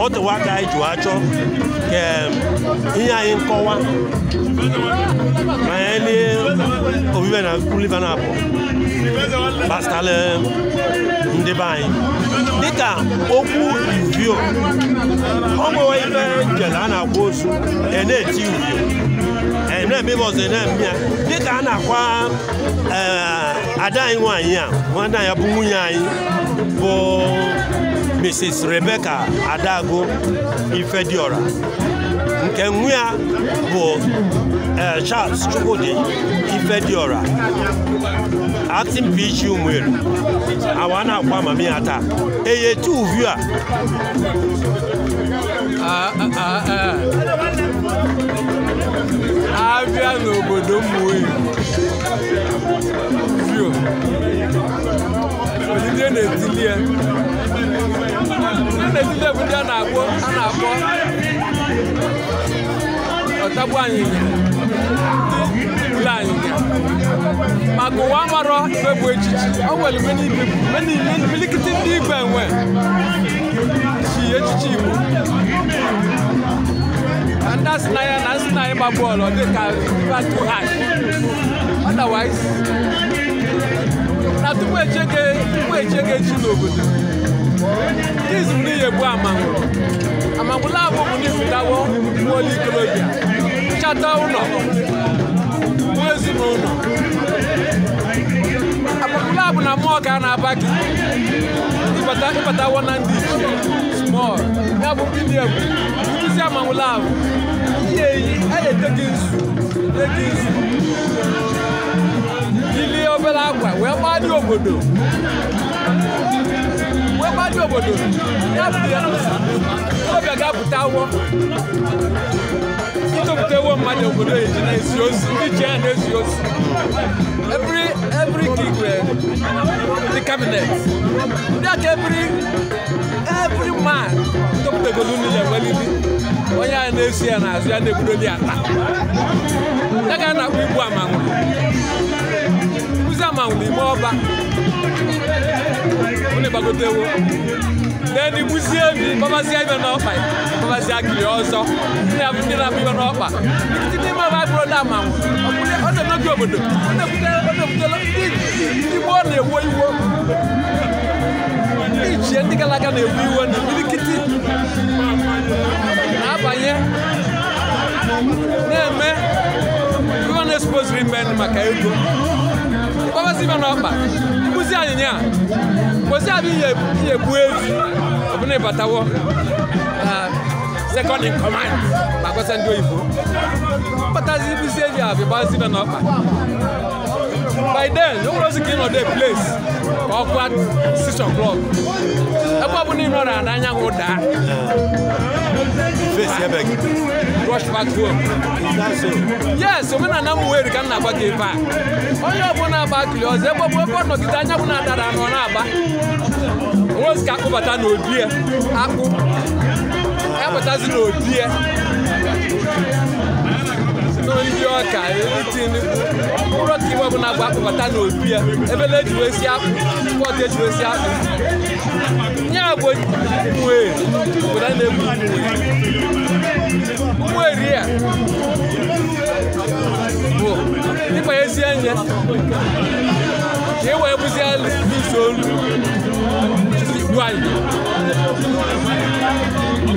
otu nwata anyị ji achọ ka ihe anyị nkọwa banyere obibi na Liverpool gbasara eh, ndị be anyị dịka okwu uvio ọ nwewe ife njele a na-akwa ozu e na-eti uvio e na-eme ibe ọzọ e na-eme ya dịka a na-akwa eh, ada anyị nwaanyị a nwanne ya bụ nwunye anyị bụ Mrs. rebeka Adagu Ifediora nke nwa ya bụ eh, Charles Chukwudi Ifediora acting PG Umueri awa na-akwa amamiha taa eye tu uviu a abịa n'obodo Umueri onye olile na-etili ya a na-etile bụ ndị a na-akpọ ọtagbu anyịnya ile anyịnya maka ụwa amarọ ibe bụ echichi ọ nwere milikiti ndị igwe enwe chi echichi igbo ndị asị na ya na asị na ịgba bọọlụ dị ka batu hash otherwise na tupu echege tupu e echege n'obodo ndị izuru n'iyi egbu amangwụ amangwụla abụ bụ ndị fụtawo uweolu ikorobịa nchata ụlọ uwe ezinụlọ agbapụla abụ na mmụọ ka a na-aba gị ịbatawo na ndị ichie smọl ya bụ ndị egwu nkụzi amangwụla abụ ihe eyi a na-ete gị nzu ete nzu ilie obere akwa wee gbaa ndị obodo mmadụ obodo obi ga-apụta awọ ịtụpụtawo mmadụ obodo eji na-esi ozi ndị ji ya na-esi ozi every every gig the cabinet ndị aka every every man tụpụtagolu niile nwelili onye a na-esi ya n'azụ ya na-ebudoli ata ya ga na-akpọ igbu amanwụ nkụzi amanwụ n'ime ọba unu gbagotewo den igbuzie ebi na bụrụ na ọ obodo na-ewo iwo na iwe na na na-eme ego mkpọbasị n'ọkpa mkpụzi anyịnya a bụ ihe gbuo ezu ọbụna ịbatawo eh, second in command makwasa ndị oyibo mkpatazi ibuzi eji abịa gbazi ibe n'ọkpa by then ụlọ ozi ka ị nọdụ place ka o'clock ebe ị nọrọ n'anyanwụ daa vee si ebe yes omenala m weri ka m na-agba ebe a onye ọbụla agba kili ọzọ ebe ọbụ ebe nọgide anya bụ na-adara anọ na-agba onwezi ka akpụbata n'obi ya akpụ ya ndị ọka tinubu mkpụrụ ọka ibe ọbụla gwa akpụkọta ya ya ebele ejiwesi akpụ si ejiwesi akpụ ya bụ wee obodo a na-egbu weri e ya bụ ịkpa ezie ka e wee bụzie ise olu igbu anyị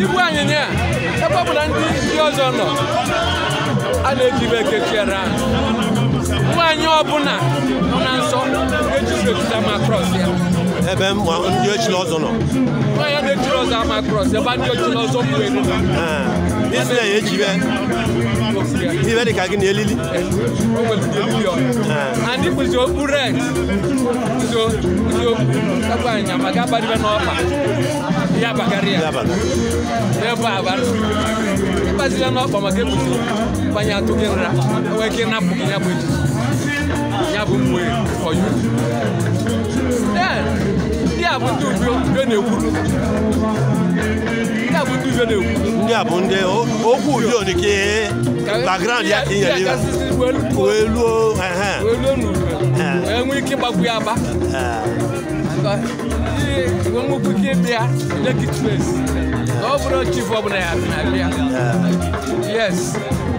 igbu anyị ya ebe ọbụla ndị ọzọ nọ a na-eji ibe ekechiere ha nwaanyị ọbụla nọ na nsọ eji ma krọs ya ebe ndị ochie ọzọ nọ sɛ ama cross ɛba ni ɔtun ɔsɔ mu enu la. yesu na ye jibɛ ni bɛ de ka kini elili. o bɛ kini elili yɔ ani kuzo urɛ kuzo kuzo kaba nyama kaba de bɛ nɔ ɔfa yaba kariya yaba abari ibasi lɛ nɔ ɔfa ma ke kuzo fanya to ke nra ɔwɛ ke na bu ke nyabu eti nyabu mu ye ɔyu bụ ndị ube na-ekwu ndị a bụ ndị okwu udo dị ka ya ka ị nyere wee luo enwe ike ịgbagbu ya agba nwekwu ike ịbịa lekit space na ọ bụrụ chief ọbụla ya bịa yes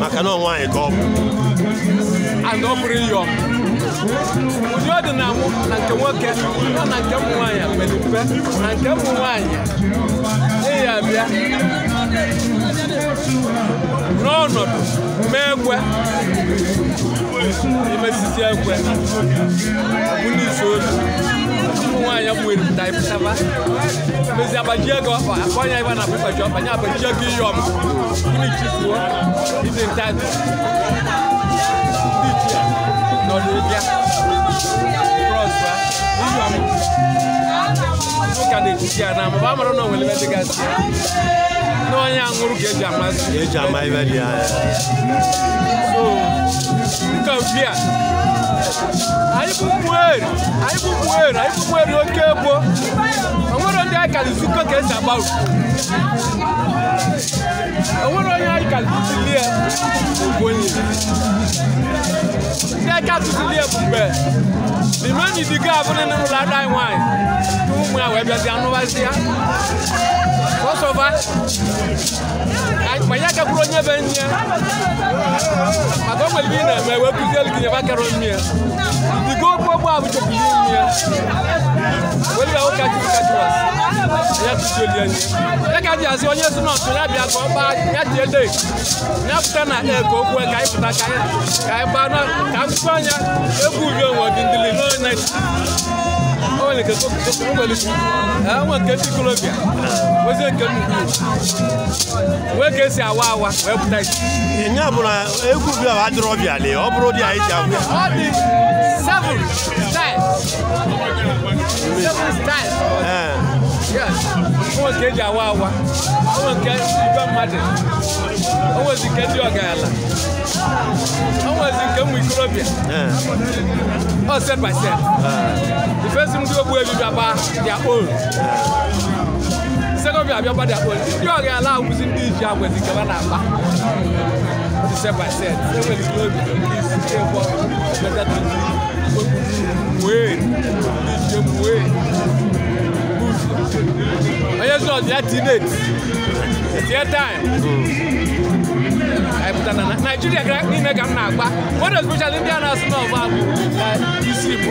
maka na ọ nwaanyị ka ọ bụ and ọ bụrụ ihe ụdị ọ dị na mụ na nke nwoke na na nke ụmụ nwaanyị mere mpe na nke ụmụ nwaanyị ịya bịa n'ọnọdụ mee ekwe imesisi ekwe ụnisi ozu ụmụ nwaanyị bụ eripụta ịpụtaba mezi agbaji ego ọfa akọ nya ibe na pụpaji ọfa nya agbaji ego ihe ọma unichifuo ndị ntazi ndị ichie n'ọdịbịa ka na-echichi ya na mba amara na o nwere ebe dịgasị ya na onye aṅụrụ ka eji amasị eji ama ibe dị anya so nke bia anyị bụ ụmụeri anyị bụ ụmụeri anyị bụ ụmụeri oke egbo onwere ndị anyị kara zukọ ka esi agba onwere onye anyị kara tụtụlie ogbenye ndị aka tụtụlie bụ mgbe limeni digo abụrụ na ụlọ ada anyị nwaanyị ụmụ ya wee bịazi anụbazi ya ọsọba manya kakwuru onye be nne maka o nwere ibe ị na-eme wee kụzielu gị nyebe akara mmiri yẹn ìgò gbogbo àwùjọ kìí ní yẹn wọ́n yà ó kájú kájú wá sí ẹ̀yà tó jẹ́ lẹ́yìn yẹn. Ẹ̀ka di àti ọyẹ́ súnmọ́ ọ̀tún lábẹ́ àgbọ̀ ọba yàtí ẹ̀dẹ̀ nyàkúta na ẹ̀kọ́ kú ẹ̀ka ìfúta káyẹ káyẹ̀bá náà káfíńfà yẹn egwu bí ọ̀wọ̀ dìndìlì náà náà ó lè kẹ́kọ̀ọ́ kẹ́kọ̀ọ́ wọlé fún ẹ̀ wọ́n kẹ́ wee ka esi awa awa wee pụta isi nya bụ na egwu bi a adịrọ ọbịa lee ọ bụrụ dị anyị ji agwụ onwe nke eji awa awa onwe nke ibe mmadụ onwezi nke ndị ọgaranya onwezi nke ụmụ ikorobịa eh. ọ set by set ndị eh. ogbu ebibi agba their own eh second year abịakwa dị akpọ ndị ọga ala awụzi ndị iji agwazi nke na akpa disepaset enwere ike obi ndị isi chekwa metatụzi wee ndị ije wee onye zụ ọdụ ya tinet tie taim pụta na naijiria gara n'ime ka m na-agba one especially ndị a na-asụ n'ọba bụ isi igbo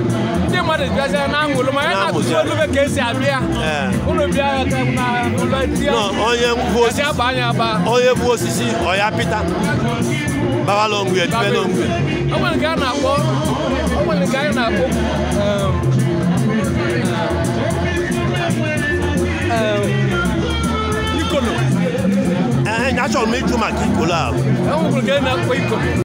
ma de bia sɛ n'a ŋolo ma ɛna tutu olu bɛ k'e si a bia olu bia ka na olu diya ɔye vuwo sisi ɛsɛ ba nya ba ɔye vuwo sisi ɔya pita baba lɔ ŋuye tibɛ lɔ ŋuye. ɔmɔni ka na kɔ ɔmɔni ka na kɔ ikolo. Eh, ɛɛ eh, nyasɔn mi ju ma k'i ko la. ɛɛ ŋun kolo na ko ikolo.